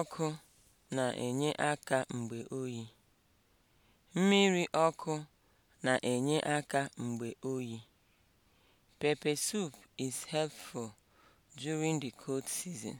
ọkụ na-enye aka mgbe oyi. Mmiri ọkụ na-enye aka mgbe oyi. Pepper soup is helpful during the cold season.